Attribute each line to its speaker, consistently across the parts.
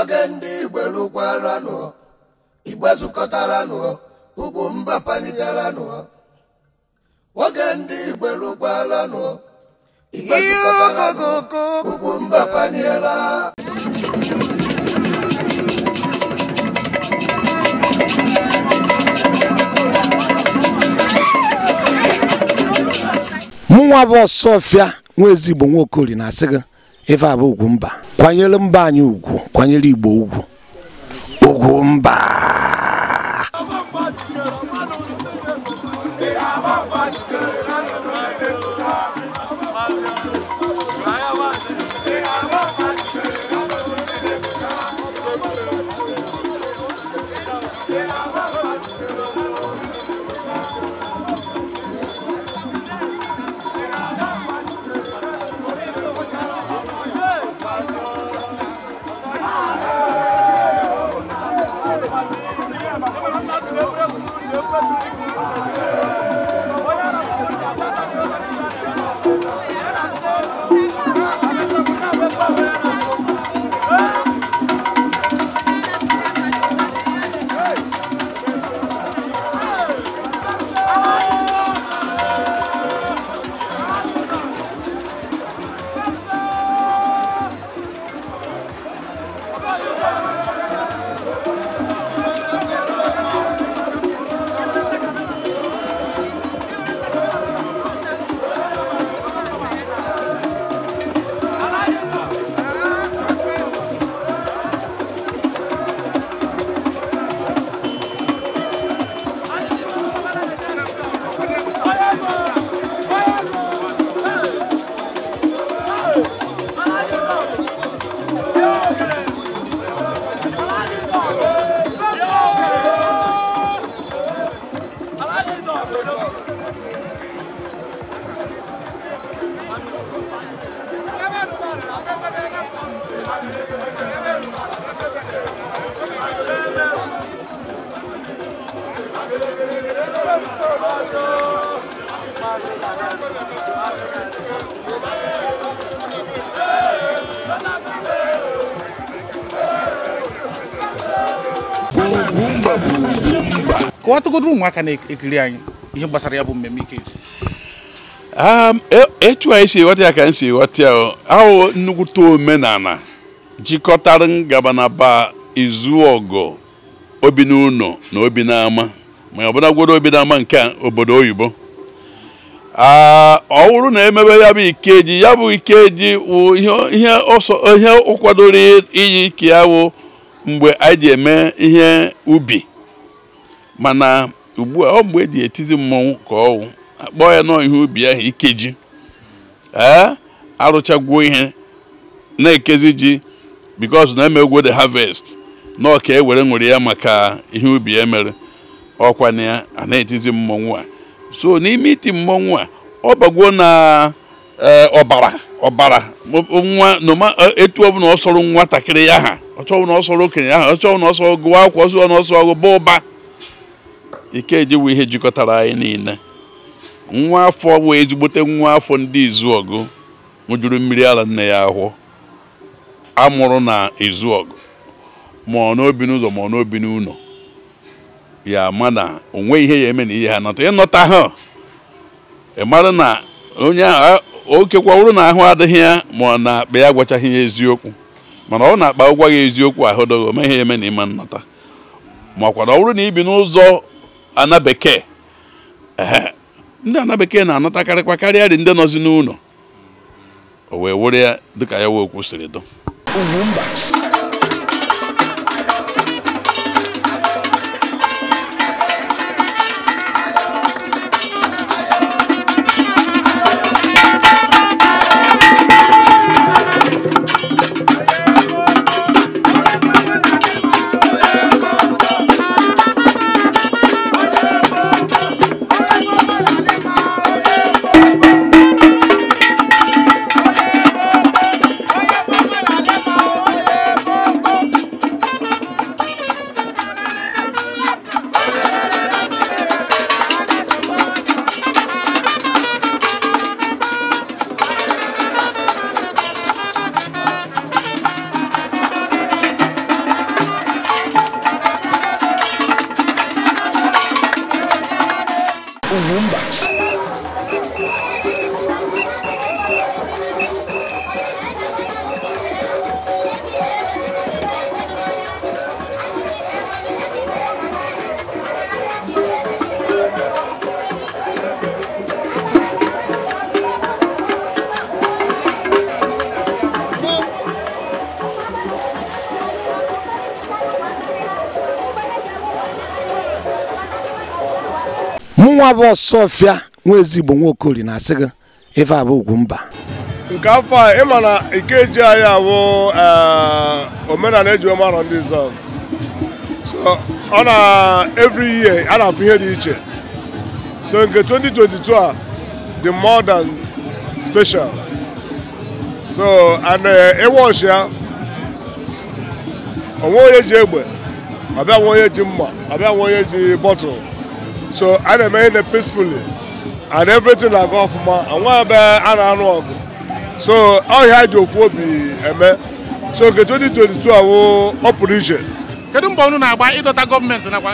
Speaker 1: oge ndị igbo nụọ igbe nụọ ugwu mba nụọ oge ndị igbo nụọ igbe nụọ ugwu mba paniela mụnwa bụ ọsọ ọfịa nwa ezigbo nwa nwaokori na-asị gị ife abụ ugwu mba kwanyere mba anyị ugwu kwanyere igbo ugwu ugwu mba
Speaker 2: Kwa tukudumu mwaka waka na ekili anyị ihe ya bụ
Speaker 3: Um, e, etu anyị si ghọta ya ka anyị si ghọta ya ahụ nnukwute omenala jikọtara ngabanaba izu ọgọ obi n'ụlọ na obi n'ama ma ọ obi n'ama nke obodo oyibo ah, ọ bụrụ na emebe ya bụ ikeji ya bụ ikeji wụ ihe ọ kwadoro iyi ike ya wụ mgbe anyị ji eme ihe ubi mana ugbu a ọ mgbe eji etizi mmọnwụ ka wụ. akpọọ ya nọ ihe ubi ahụ ikeji ee arụchagwuo ihe na-ekezi ji because na emegwo de harvest na ọka ewere nwere ya maka ihe ubi ya e mere ọkwa na ya a na-etizi mmọnwụ a so n'ime iti mmọnwụ a ọ bagwo na eh, ọbara ọbara nwa noma eh, etu ọbụla ọ sọrọ nwatakịrị ya ha ọchọwụ na ọsọrọ okenye ahụ ọchọwụ na ọsọ gụwa akwụkwọ ọsọ na ọsọ ọgụ ba ụba ike ejiwe ihe jikọtara anyị niile nwa afọ bụ ezigbote nwa afọ ndị izuọgụ nwụjuru mmiri ala nne ya ahụ amụrụ na izuọgụ ma ọ n'obi n'ụzọ ma ọ n'obi n'ụlọ ya ama na onwe ihe ya eme na ihe ha nata ịnọta ha ị mara na onye ahụ o na ahụ adịghị ya ma ọ na-akpa ya agwachaghị ya eziokwu mana ọ na-akpa ụgwọ ya eziokwu ahụ dọghị ome ihe ya eme na ịma nnata makwa na ọ bụrụ na ibi n'ụzọ ana bekee ndị ana bekee na-anatakarịkwa karịa dị ndị nọzi n'ụlọ o wee were ya dịka ya wee kwụsịrị dụ
Speaker 1: nwa bụ ọsọfịa nwa ezigbo nwa okori na-asị gị ife abụ ugwu mba nke afọ a ịma na ikeji anyị abụ eh, omenala eji marọ ndị zọ so ọ na every year a na-afụ ihe dị iche so nke 2022 a di more than special so and eh, ịwọchi ya onwe onye ji egbe ọbịa nwe onye ji mma ọbịa nwe onye ji bọtụl so i na-eme ihe peacefully and everything na off ma nwa ebe a na-anụ ọgụ so ọhịa ji ofu obi eme so nke 2022 awụ ọ pụrụ iche
Speaker 2: kedu mgbe unu na-agba ịdọta na nakwa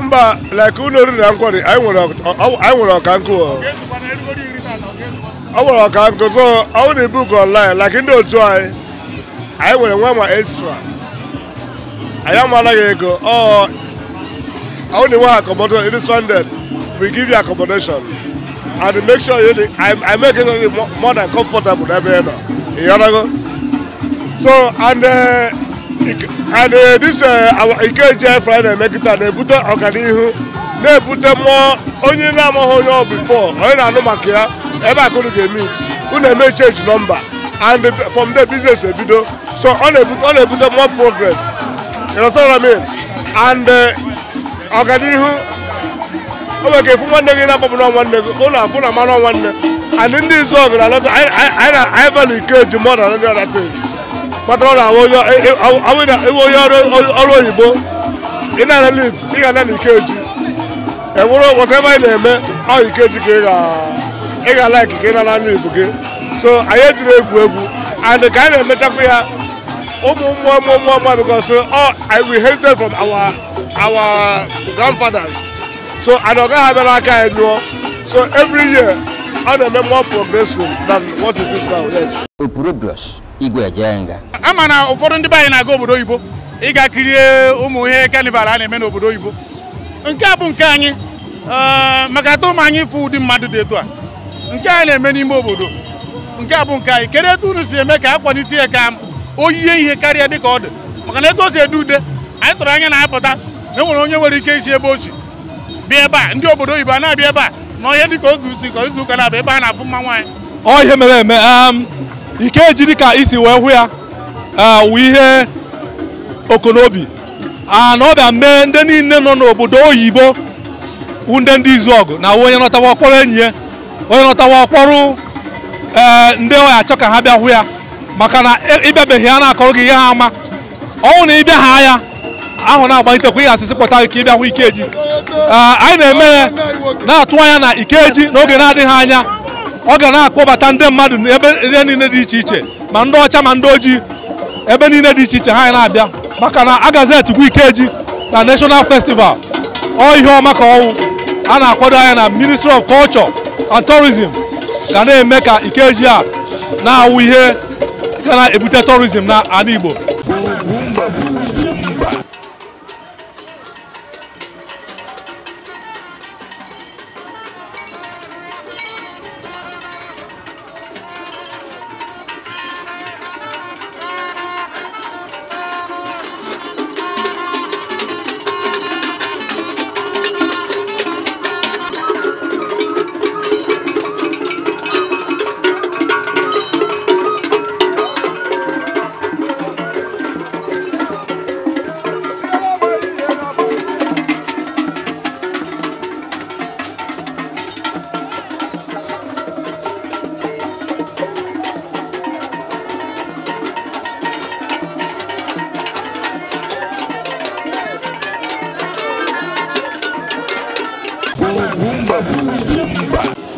Speaker 1: mba like ụlọ oriri na nkwari anyị nwere ọkankụ ọ nwere ọkankụ so ọ wụ na ibu ka online like ndị otu anyị anyị nwere nwa ma extra anyị amalaghị ego ọ only want accommodation. It is funded. We give you accommodation. And make sure you, I, I make it more, more than comfortable every year. You understand? So, and uh, and uh, this uh, our Ikeje Friday it na they put na-ebute They put na more. Only ọ before onye before anụ maka ya ebe ever, ka unu ga-emit unu eme change number and from the business ebido so only put ebute more progress you know what I mean and uh, ọganihu o nwere ka efu nwanne gị na-akpọpụ nọ nwanne gị ụlọ afụ na mmanụ nwanne and ndị izu ọgụ na anọta anyị valụ ike eji mọ na ndị ọda tins kpatara na iwe onye ọrụ oyibo ị na-ana liv ị ga-ana ike ikeji enwere whatever ị na-eme ọ ike ikeji ka ị ga-ala ka ị nana liv gị so anyị ejiri egwu egwu and ka anyị na-emechakwa ya ụmụ mmụọ mmụọ mmụọ mmụọ because oh, we inherited from our our grandfathers so and ọ gaghị abịara aka anyị nyụọ so every year ọ na-eme more progressive than
Speaker 4: what it is now yes. opurobios igwe ejenga.
Speaker 1: ama na ụfọdụ ndị be anyị na-aga obodo oyibo
Speaker 2: ịga kirie ụmụ ihe kanival a na-eme n'obodo oyibo nke a bụ nke anyị eh, maka atụ ụmụ anyị ịfụ ụdị mmadụ dị etu a nke a na-eme n'ime obodo nke a bụ nke anyị kedu etu unu si eme ka a kwalite ya ka o yie ihe karịa ka ọ dị maka na etu o si ede ude anyị tụrụ anya na-apụta enwere onye nwere ike isi ebe ochi bịa ebe a ndị obodo oyibo a na-abịa ebe a na dị ka oge usi ka izu ụka na-abịa ebe a na-afụ mma nwaanyị
Speaker 5: ọ ihe mere eme um, ike ejiri ka isi wee hụ ya uh, wụ ihe okonobi na ọ bịa mee ndị niile nọ n'obodo oyibo wunde ndị izu ọgụ na onye nọtawa ọkpọrọ enyi ya onye nọtawa ọkpọrọ ee uh, ndị ọya achọ ka ha bịa hụ ya maka na ịbịabeghị e, ya na-akọrọ gị ihe ha ama ọnwụ na ịbịa ha ya ahụ na-agbalite kwa ihe asịsị pụta ka ị Ikeji ah, anyị na-eme na-atụ anya na Ikeji n'oge na-adịghị anya ọ ga na-akpọbata ndị mmadụ n'ebe ihe niile dị iche iche ma ndị ọcha ma ndị ojii ebe niile dị iche iche ha na-abịa maka na agazeti gwa Ikeji na National Festival ọ ihe ọma ka ọnwụ a na-akwado anya na Ministry of Culture and Tourism ga na-eme ka Ikeji a na-awụ ihe ga na-ebute tourism na ala Igbo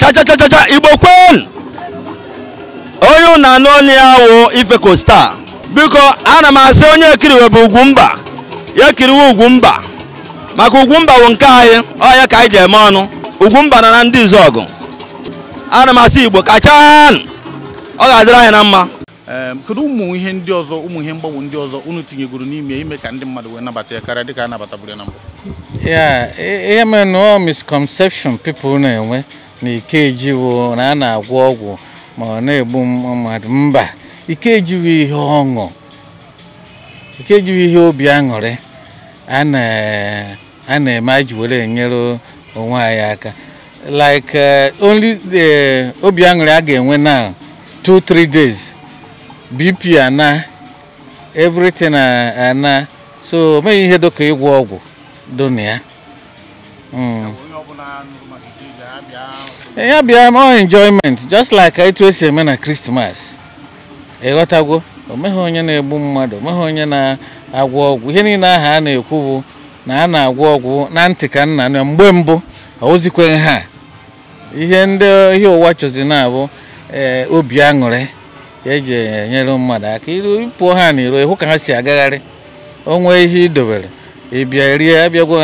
Speaker 5: chachachachacha igbo kwenu onye unu anụ ọnụ ya wụ ife kosta biko ana m asị onye ekiriwe bụ ugwumba ya ekiriwe ugwumba maka ugwumba bụ nke anyị ọya ka anyị ji eme ọnụ ugwumba na na ndị izọgụ ana m asị igbo kachan ọ ga-adịrị anyị na mma
Speaker 2: kedu ụmụ ihe ndị ọzọ ụmụ ihe mgbanwe ndị ọzọ unu tinyegoro n'ime ime ka ndị mmadụ wee nabata ya karịa dịka a nabataburu ya na mbụ
Speaker 4: E, ihe eme na ọ misconception people na-enwe na ikeji wo na a na-agwọ ọgwụ ma ọ na-egbu mmadụ mba ike ikejiwo ihe ọṅụ ikejiwo ihe obi aṅụrị a na-eme aji enyere onwe anyị aka like e, only the obi aṅụrị a ga-enwe na 2-3 days bp ana everything ana so o ihe dịka ịgwọ ọgwụ donia hmm. ya bịa ma enjoyment just like etu esi eme na krismas ịghọtagwo omeghị onye na-egbu mmadụ omeghị onye na-agwọ ọgwụ ihe niile aha a na-ekwu bụ na a na-agwọ ọgwụ na ntị ka nna na mgbe mbụ ozikwe ha ihe ndị ihe ụwa chọzi na-abụ ee obi aṅụrị eji enyere mmadụ aka iru pụọ ha n'iro ịhụ ka ha si agagharị onwe ihe idobere ị bịa rie abịagwa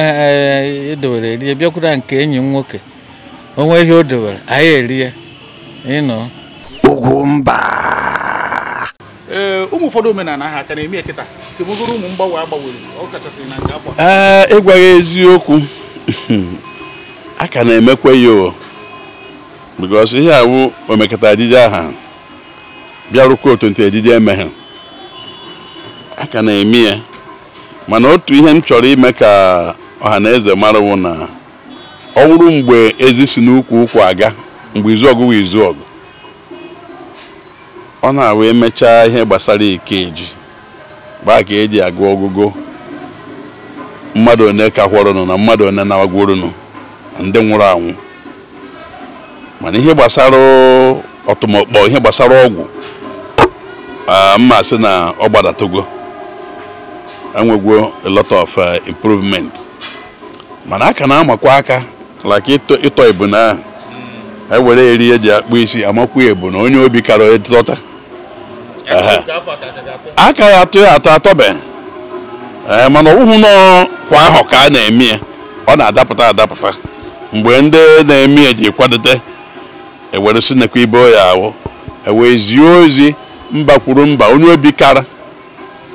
Speaker 4: edowere eh, eh, rie bịakwura nke enyi m nwoke onwe ihe o dowere anyị erie ịnọ ugwu mba
Speaker 2: ee eh, ụmụ ụfọdụ omenala ha ka na-eme nkịta? ekịta kemogoro ụmụ mgbanwe agbanwere ọ kachasị
Speaker 3: na nke akwa ee ya eziokwu a ka na-emekwe ya because ihe awụ omekata ejije aha bịarụkwa otu ntị ejije emeghe a ka na-eme ya mana otu ihe m chọrọ ime ka ọha na eze marawụ na ọ wụrụ mgbe ezi si n'ukwu ukwu aga mgbe izu ọgụ izu ọgụ ọ na-awụ emechaa ihe gbasara ikeji gbaa ka eji agụ ọgụgụ mmadụ one ka na mmadụ one na-agwụrụnụ ndị nwụrụ anwụ mana ihe gbasara ọtụmọkpọ ihe gbasara ọgwụ mma sị na ọ gbadatogo enwegwo a lot of uh, improvement mana aka na-amakwa aka like ịtọ ebuna na ewere eri eji akpụ isi amakwa ebuna onye obi kara ịtọta aka ya atụ ya atọ atọbe eh, mana ọwụhụ nọ kwa ahụ ka a na-eme ya ọ na-adapụta adapụta mgbe ndị na-eme ya ji kwadote ewere sinekwa ibe ya ahụ ewee ozi mba kwuru mba onye obi kara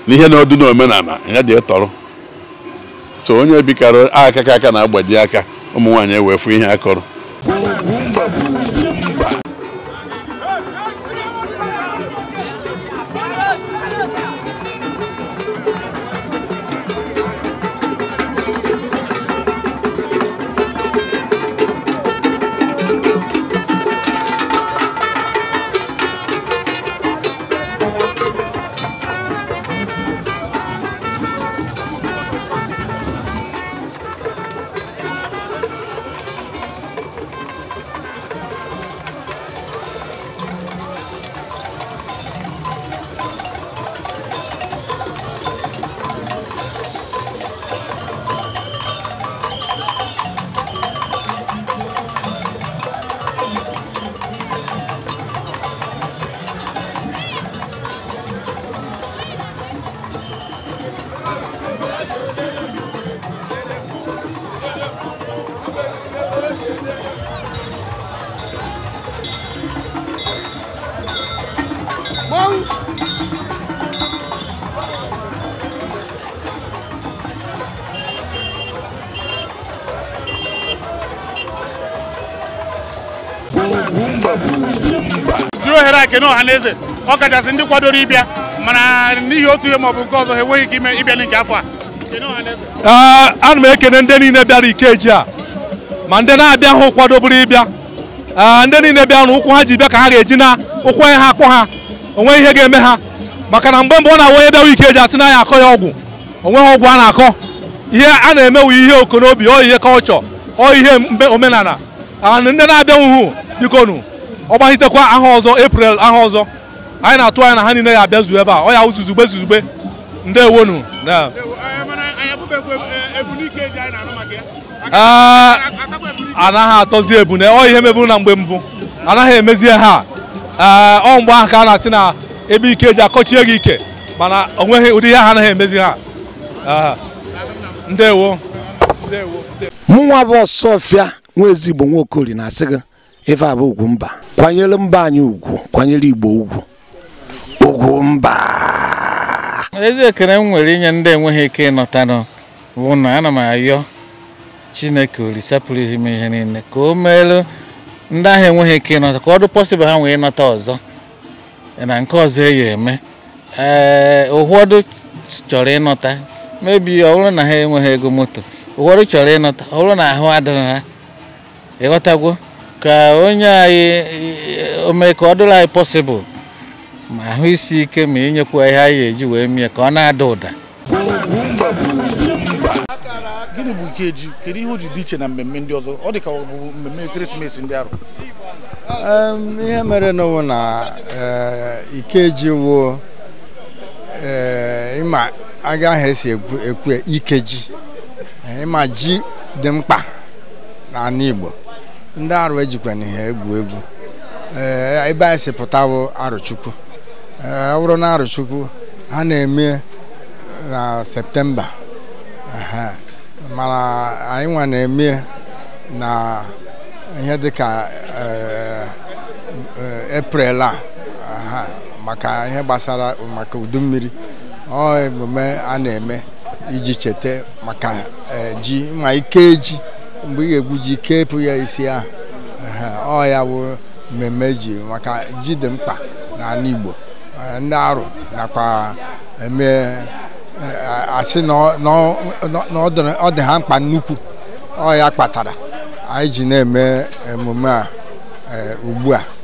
Speaker 3: n'ihe na ọdụ n'omenala ya dị tọrọ so onye bikarụ aka aka na-agbaji aka ụmụ nwaanyị ewefụ ihe akọrọ
Speaker 1: jiri ohere a
Speaker 2: kene ọha na eze ọ ndị kwadoro ịbịa mana n'ihi otu ihe maọbụ nke ọzọ ha enweghị ike ime ịbịa nke
Speaker 5: afọ a ana m ekene ndị niile bịara ikeji a ma ndị na-abịa hụ kwadoburu ịbịa ndị niile bịa na ụkwụ ha ji bịa ka ha ga-eji na ụkwụ onye ha akpọ ha onwe ihe ga-eme ha maka na mgbe mgbe ọ na-awa onye bịawa ikeji asị na ya akọ ya ọgwụ onweghị ọgwụ a na-akọ ihe a na-emewu ihe okonobi ọ ihe kọlchọ ọ ihe omenala ndị na-abịa nwuhu ọ ọgbaghitekwa aha ọzọ eprel aha ọzọ anyị na-atụ anya na ha niile ya abịa zuo ebe a ọ ya uzuzugbe zuzugbe ndewonu anaghị atọzi ebune ọ ihe meburu na mgbe mbụ anaghị emezie ha ọ mgbe ahụ ka a na-asị na ebe ike ji akọchie gị ike mana o nweghị ụdị ihe ha anaghị emezi ha ndewo
Speaker 1: mụnwa bụ ọfịa nwa ezigbo nwaokori na-asị gị ife bụ ugwu mba kwanyere mba anyị ugwu kwanyere igbo
Speaker 4: ugwu ugwu mba ezi ekele m nwere inye ndị enweghị ike ịnọtanụ bụ na ana m ayọ chineke olise pụrụ ihe m ihe niile ka o meelu ndị ahụ enweghị ike ịnọta ka ọ dị ha nwee ịnọta ọzọ na nke ọzọ eyi eme ee ụfọdụ chọrọ ịnọta mebi ọ bụrụ na ha enweghị ego moto ụfọdụ chọrọ ịnọta ọ bụrụ na ahụ adịghị ha ịghọtagwo ka onye anyị ọ dịrị anyị pọsịbụl ma ahụ isi ike ma inyekwa ihe anyị eji wee mie ka ọ na-ada ụda
Speaker 2: gịnị bụ Ikeji kedu ihe o ji dị iche na mmemme ndị ọzọ ọ dị ka ọ bụ mmemme ekeresimesi ndị arụ
Speaker 6: ihe mere n'ụwa na eh, Ikeji wuo eh, ịma agaghị esi ekwu Ikeji eh, ịma ji dị mkpa n'ala Igbo ndị arụ ejikwa n'ihe egwu egwu eh, ebe anyị si pụtawo arụchukwu eh, ọ bụrụ na arụchukwu ha na-eme na eh, septemba mana anyị nwa na-eme na ihe dịka eprel a maka ihe gbasara maka udu mmiri ọ emume a na-eme iji cheta maka ji ma ike ji mgbe ị ga-egbu ji kepụ ya isi ahụ ọ ya bụ mmemme ji maka ji mkpa n'ala Igbo ndị arụ nakwa eme eh, asị mkpa nnukwu ọ ya kpatara anyị ji na-eme emume a eh, ugbu a